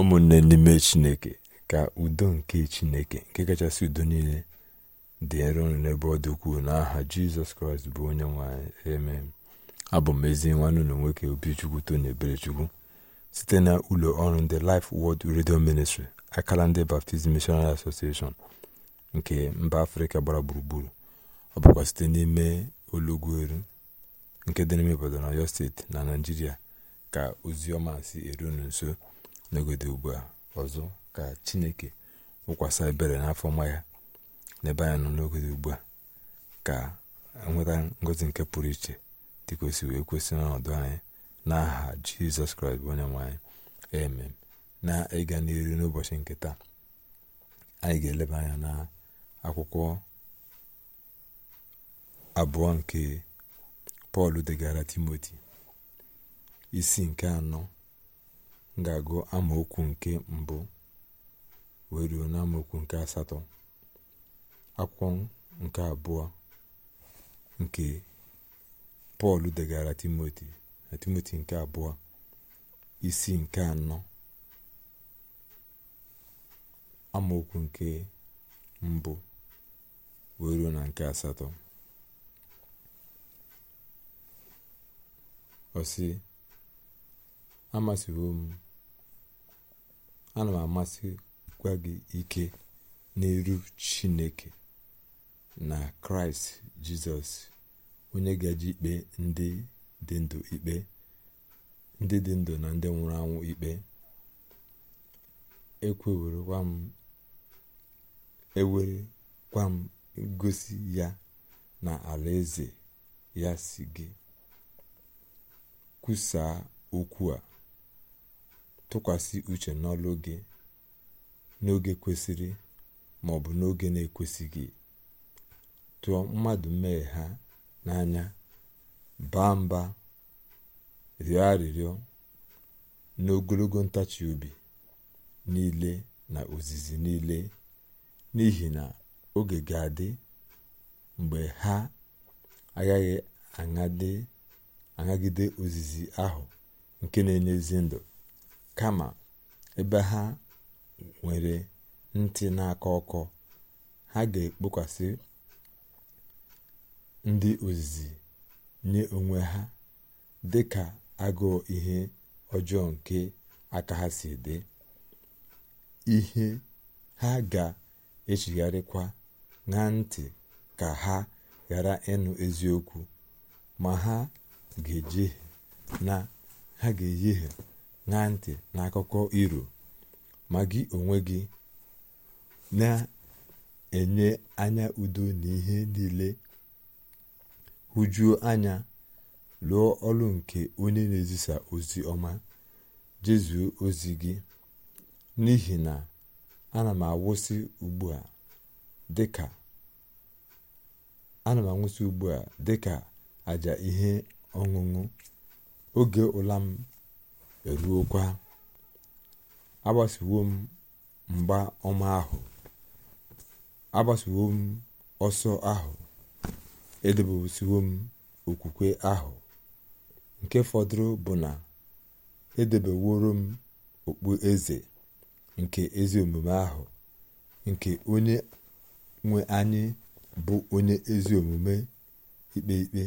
ụmụnne n'ime chineke ka udo nke chineke nke kachasị udo niile dị nro n'ebe ọ dị ukwuu n'aha jizọs kraịst bụ onye nwanyị amen abụ m ezi nwanne ụlọ nwoke obichukwu tony eberechukwu site na ụlọ ọrụ ndị Life Word Radio Ministry akala ndị Baptist Missionary Association nke mba afrịka gbara gburugburu ọ bụkwa site n'ime olugweru nke dị n'ime Ibadan Ọyọ steeti na naijiria ka ozi ọma si eru nso n'ogode ugbu a ọzọ ka chineke wụkwasị ebere n'afọ ọma ya n'ebe anya nọ n'ogode ugbu a ka e nweta ngozi nke pụrụ iche dịkwesị wee kwesị n'ọnọdụ anyị n'aha jizọs kraịst bụ onye nwe anyị na ịga n'iru n'ụbọchị nke taa anyị ga-eleba anya na akwụkwọ abụọ nke pọl degara timoti isi nke anọ m ga-agụ amaokwu nke mbụ wee ruo amaokwu nke asatọ akwụkwọ nke abụọ nke pọl degara timoti na timoti nke abụọ isi nke anọ amaokwu nke mbụ wee ruo na nke asatọ ọ sị amasịwo m ana m amasịkwa gị ike n'elu chineke na kraịst jizọs onye gaji ikpe ndị dị ndụ ikpe ndị dị ndụ na ndị nwụrụ anwụ ikpe ekwewerekwa m e m ngosi ya na alaeze ya si gị kwusaa okwu a tụkwasị uche n'ọlụ oge n'oge kwesịrị ma ọ bụ n'oge na-ekwesịghị tụọ mmadụ mee ha n'anya baa mba rịọ arịrịọ n'ogologo ntachi obi niile na ozizi niile n'ihi na oge ga-adị mgbe ha agaghị aṅagide ozizi ahụ nke na-enye ezi ndụ kama ebe ha nwere ntị n'aka ọkọ ha ga-ekpokwasị ndị ozizi nye onwe ha dị ka agụụ ihe ọjọọ nke aka ha si dị ihe ha ga-echigharịkwa na ntị ka ha ghara ịnụ eziokwu ma ha ga-ejehie na ha ga-eyehie na ntị n'akụkọ iro ma gị onwe gị na-enye anya udo na ihe niile hụjuo anya lụọ ọrụ nke onye na-ezisa ozi ọma jezuo ozi gị n'ihi na ana m awụsị ugbu a dịka ana anwụsị ugbu a dịka aja ihe ọṅụṅụ oge ụla m eruokwa agbasiwo m mgba ọma ahụ agbasiwo ọsọ ahụ edebesiwo m okwukwe ahụ nke fọdụrụ bụ na edebeworo m okpu eze nke ezi omume ahụ nke onye nwe anyị bụ onye ezi omume ikpe ikpe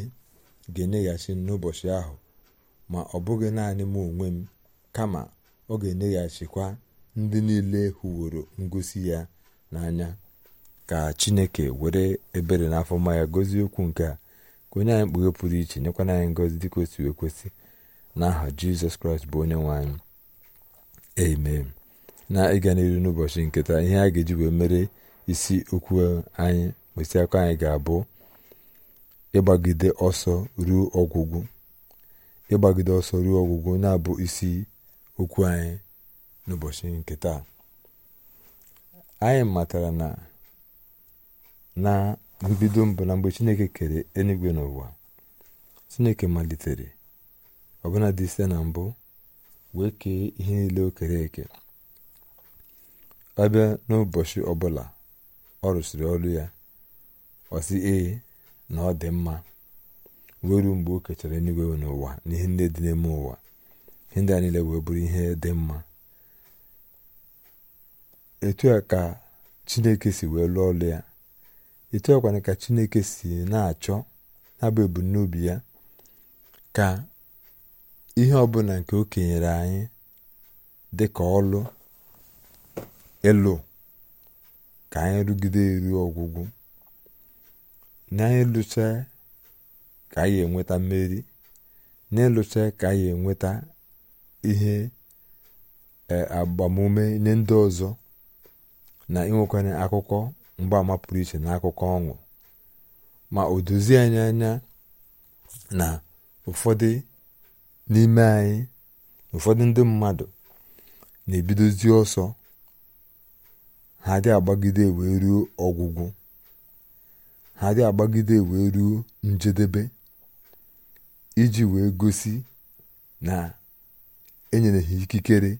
ga-enyeghachi n'ụbọchị ahụ ma ọ bụghị naanị m onwe m kama ọ ga-enyeghachikwa ndị niile hụworo ngosi ya n'anya ka chineke were ebere n'afọ mma ya gozie okwu nke a ka onye anyị mkpughe pụrụ iche nyekwana anyị ngozi dịka otu ekwesị n'aha jizọs kraịst bụ onye nwe anyị amen na ịga n'elu n'ụbọchị nketa ihe a ga-eji wee mere isi okwu anyị mkpịsị anyị ga-abụ ịgbagide ọsọ ruo ọgwụgwụ ịgbagide ọsọ ruo ọgwụgwụ na-abụ isi okwu anyị n'ụbọchị nke taa anyị matara na na mbido mbụ na mgbe chineke kere enigwe n'ụwa chineke malitere ọbụna dị site na mbụ wee kee ihe niile o kere eke abịa n'ụbọchị ọbụla ọ rụsịrị ọrụ ya ọ sị ee na ọ dị mma wee ruo mgbe o kechara eluigwe n'ụwa na ihe ndị dị n'ime ụwa ihe ndị a niile wee bụrụ ihe dị mma etu a ka chineke si wee lụọ ọlụ ya etu a kwana ka chineke si na-achọ na-abụ ebumnobi ya ka ihe ọbụla nke o kenyere anyị dị ka ọlụ ịlụ ka anyị rugide eru ọgwụgwụ na anyị lụchaa ka anyị enweta mmeri n'ịlụcha ka anyị enweta ihe agbamume e, nye ndị ọzọ na inwekwanye akụkọ mgbaama pụrụ iche na akụkọ ọṅụ ma o dozie anyị anya na ụfọdụ n'ime anyị ụfọdụ ndị mmadụ na-ebidozi ọsọ ha dị agbagide wee ruo ọgwụgwụ ha dị agbagide wee ruo njedebe iji wee gosi na enyere ha ikikere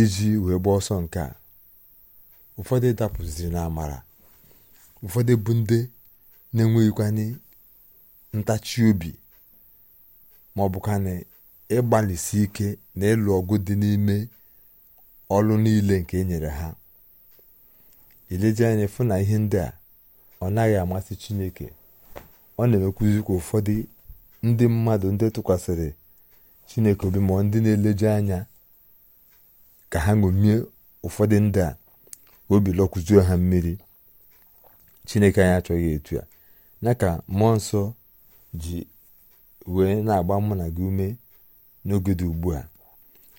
iji wee gbaa ọsọ nke a ụfọdụ dapụziri na amara ụfọdụ bụ ndị na-enweghịkwanye ntachi obi ma ọ bụkwanị ịgbalịsi ike na ịlụ ọgụ dị n'ime ọlụ niile nke e nyere ha ileje anya fụ na ihe ndị a ọ naghị amasị chineke ọ na-emekwụzi kwa ụfọdụ ndị mmadụ ndị tụkwasịrị chineke obi ma ndị na-eleje anya ka ha ṅomie ụfọdụ ndị a obi lọkụzuo ha mmiri chineke anyị achọghị etu a ya ka mmụọ nsọ ji wee na-agba mụ na gị ume n'oge dị ugbu a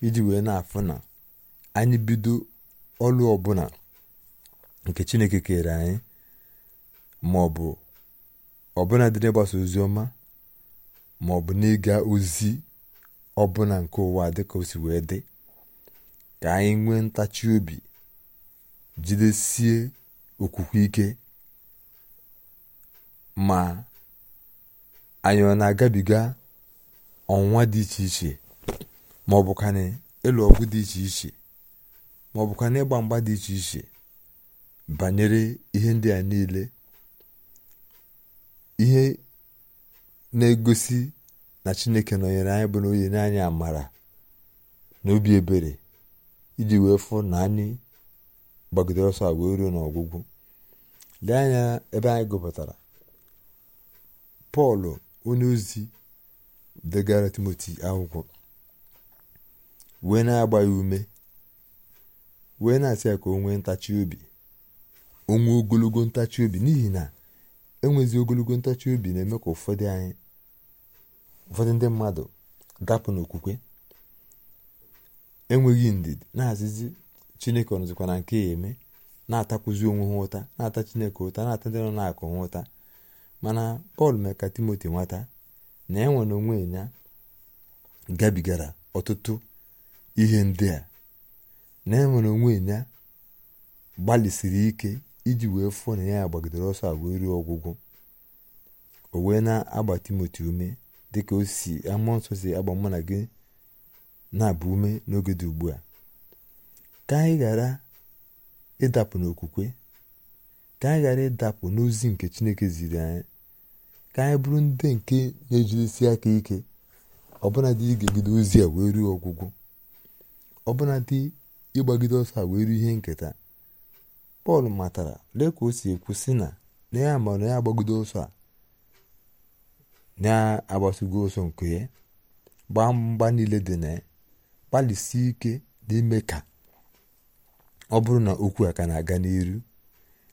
iji wee na-afụ na anyị bido ọlụ ọbụla nke chineke kere anyị ma ọ ọbụla dị n'ịgbasa ozi ọma ma ọ bụ n'ịga ozi ọbụla nke ụwa dịka o si wee dị ka anyị nwee ntachi obi jidesie okwukwe ike ma anyị ọ na-agabiga ọnwa dị iche iche ma ọ bụkwa na ịlụ ọgụ dị iche iche ma ọ bụkwa na ịgba mgba dị iche iche banyere ihe ndị a niile ihe na-egosi na chineke nọnyere anyị bụ na onye nye anyị amara na obi ebere iji wee fụ na anyị gbagidere ọsọ a wee ruo n'ọgwụgwụ lee anya ebe anyị gụpụtara pọl onye ozi degara timoti akwụkwọ wee na-agba ya ume wee na-asị ya ka o nwee ntachi obi onwe ogologo ntachi obi n'ihi na enwezi ogologo ntachi obi na-eme ka ụfọdụ ndị mmadụ dapụ n'okwukwe enweghị ndidi na-azịzi chineke ọnụzikwa na nke ya eme na-atakwuzi onwe ha ụta na-ata chineke ụta na-ata ndị nọ na-akụ ha ụta mana pọl mere ka timoti nwata na enwe na onwe ya gabigara ọtụtụ ihe ndị a na enwere onwe ya gbalịsiri ike iji wee fụọ na ya gbagidere ọsọ a wee ọgwụgwụ o wee na-agba timoti ume dịka o si amụọ nsọ si agba mụ na gị na-abụ ume n'oge dị ugbu a ka anyị ghara ịdapụ n'okwukwe ka anyị ghara ịdapụ n'ozi nke chineke ziri anyị ka anyị bụrụ ndị nke na ejirisi aka ike ọbụna dị ozi a wee ruo ọgwụgwụ ọbụna dị ịgbagide ọsọ a wee ruo ihe nketa pọl matara lee ka o si ekwu si na na ya ma na ya agbagodo ụsọ a na agbasigo ọsọ nke ya gbaa mgba niile dị na ya gbalịsie ike n'ime ka ọ bụrụ na okwu a ka na-aga n'iru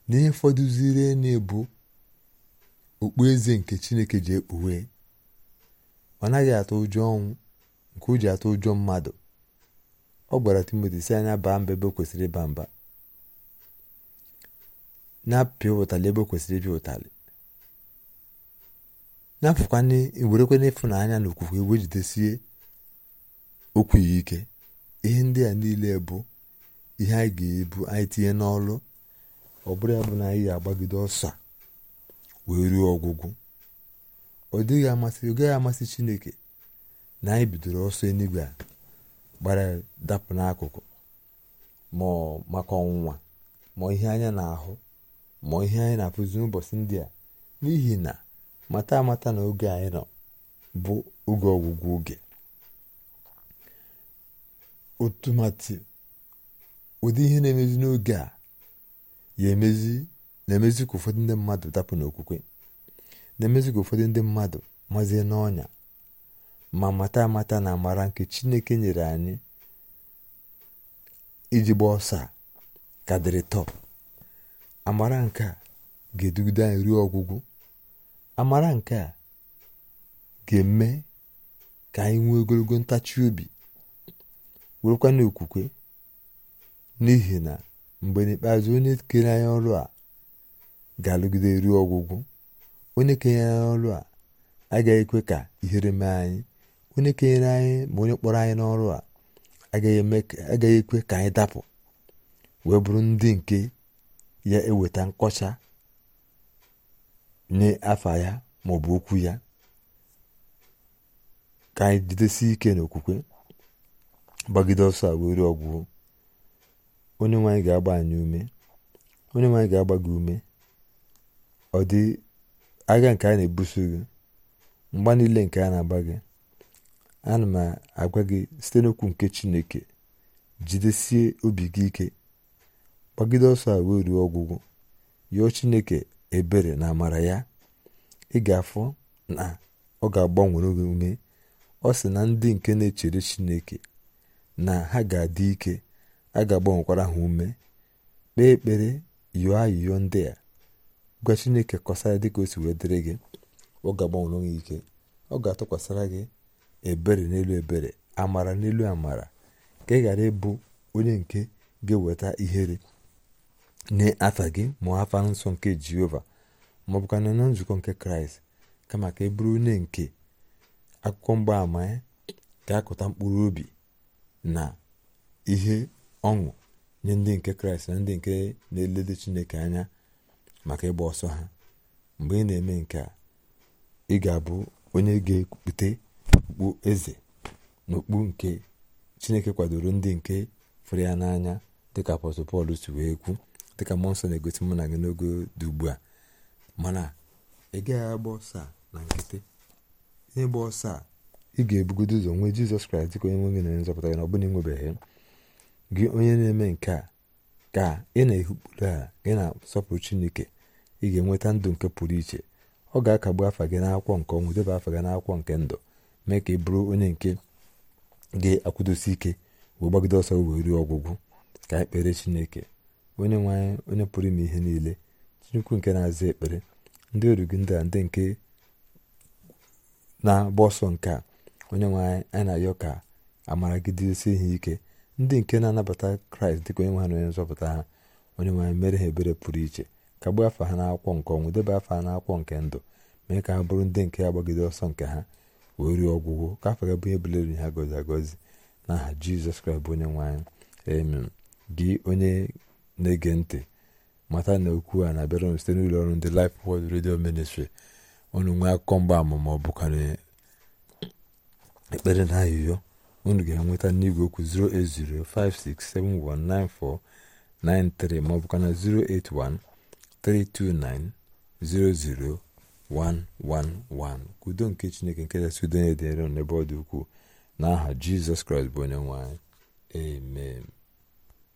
n'ihe fọdụziri na-ebu okpueze nke chineke ji ekpughe ọ naghị atụ ụjọ ọnwụ nke o ji atụ ụjọ mmadụ ọ gwara timoti si anya baa mba ebe kwesịrị ịba mba na-apịa ụtalị ebe o kwesịrị ịpịa ụtalị na-apụkwa werekwa n'ịfụnanya na okwukwe jidesie okwu ya ike ihe ndị a niile bụ ihe anyị ga-ebu anyị tinye n'ọrụ ọ bụrụ ya bụ na anyị ga-agbagide ọsọ wee ruo ọgwụgwụ ọ dịghị amasị ọ gaghị amasị chineke na anyị bidoro ọsọ enigwe a gbara dapụ n'akụkụ ma maka ọnwụnwa ma ihe anya na-ahụ ma ihe anyị na-akụzi n'ụbọchị ndị a n'ihi na mata amata na oge anyị nọ bụ oge ọgwụgwụ oge otumati ụdị ihe na-emezi n'oge a ya emezi na-emezi ka ụfọdụ ndị mmadụ dapụ n'okwukwe na-emezi ka ụfọdụ ndị mmadụ mazie n'ọnya ma mata amata na amara nke chineke nyere anyị iji gba ọsọ a ka dịrị tọp amara nke a ga-edugide anyị ruo ọgwụgwụ amara nke a ga-eme ka anyị nwee ogologo ntachi obi werekwa n'okwukwe n'ihi na mgbe n'ikpeazụ onye kere anyị ọrụ a ga-alụgide ruo ọgwụgwụ onye kenyere anyị ọrụ a agaghị ekwe ka ihere mee anyị onye kenyere anyị ma onye kpọrọ anyị n'ọrụ a agaghị ekwe ka anyị dapụ wee bụrụ ndị nke ya eweta nkọcha nye afa ya maọbụ okwu ya ka anyị jidesi ike n'okwukwe gbagide ọsọ a ọgwụ onye nwanyị ga-agba anyị ume onye ga-agba gị ume ọ dị agha nke a na-ebuso gị mgba niile nke a na-agba gị ana m agwa gị site n'okwu nke chineke jidesie obi gị ike gbagide ọsọ a wee ruo ọgwụgwụ yọọ chineke ebere na amara ya ị ga-afụ na ọ ga-agbanwere gị ume ọ sị na ndị nke na-echere chineke na ha ga-adị ike a ga-agbanwekwara ha ume kpee ekpere yọọ ayịyọ ndị a gwa chineke kọsara dịka o si wee dịrị gị ọ ga-agbanwere gị ike ọ ga-atụkwasịra gị ebere n'elu ebere amara n'elu amara ka ị ghara ịbụ onye nke ga-eweta ihere nye afa gị mụọ afa nsọ nke jehova ma ọ na nzukọ nke kraịst kama ka e bụrụ onye nke akụkọ mgbaama ya ga-akụta mkpụrụ obi na ihe ọṅụ nye ndị nke kraịst na ndị nke na-elele chineke anya maka ịgba ọsọ ha mgbe ị na-eme nke a ị ga-abụ onye ga-ekpute okpu eze na okpu nke chineke kwadoro ndị nke fụrụ ya n'anya dịka apọstọl pọl si wee kwu dịka mmụọ nsọ na-egosi mụ na gị n'ogo dị ugbu a mana ị gaghị agba ọsọ na nkịtị n'ịgba ọsọ a ị ga-ebugodo ụzọ nwee jizọs kraịst dịka onye nwe gị na nzọpụta gị na ọ bụla ịnwebeghị gị onye na-eme nke a ka ị na-ehi a gị na-asọpụrụ chineke ị ga-enweta ndụ nke pụrụ iche ọ ga-akagbu afa gị n'akwụkwọ nke ọnwụ debe afa gị n'akwụkwọ nke ndụ mee ka ị bụrụ onye nke gị akwụdosi ike wee gbagide ọsọ wee ruo ọgwụgwụ ka anyị kpere chineke onye nwe onye pụrụ ime ihe niile chukwu nke na-aza ekpere ndị oru gị ndị a ndị nke na-agba ọsọ nke a onye nwe anyị na-ayọ ka amara gị dịsi ihe ike ndị nke na-anabata kraịst dịka onye nwe ha na onye nzọpụta ha onye nwanyị mere ha ebere pụrụ iche ka kagbuo afọ ha na na-akwụkwọ nke ọnwụ debe afọ ha n'akwụkwọ nke ndụ mee ka ha bụrụ ndị nke agbagide ọsọ nke ha wee ruo ọgwụgwụ ka afọ ga bụ ihe bulere ha gozi agozi n'aha jizọs kraịst bụ onye nwe anyị gị onye na-ege ntị mata na okwu a na-abịara site n'ụlọ ọrụ ndị Life Word Radio Ministry unu nwee akụkọ mgbaama ma ọ bụkwa ekpere na ayụyo unu ga-enweta n'igwe okwu 08056719493 ma ọ bụkwa na 08132900111 udo nke Chineke nke kachasị udo na-edere n'ebe ọ dị ukwuu n'aha Jizọs Kraịst bụ onye nwe amen